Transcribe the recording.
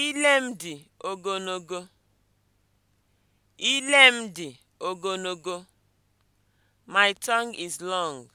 Ile m dị ogologo. Ile m dị ogologo. My tongue is long.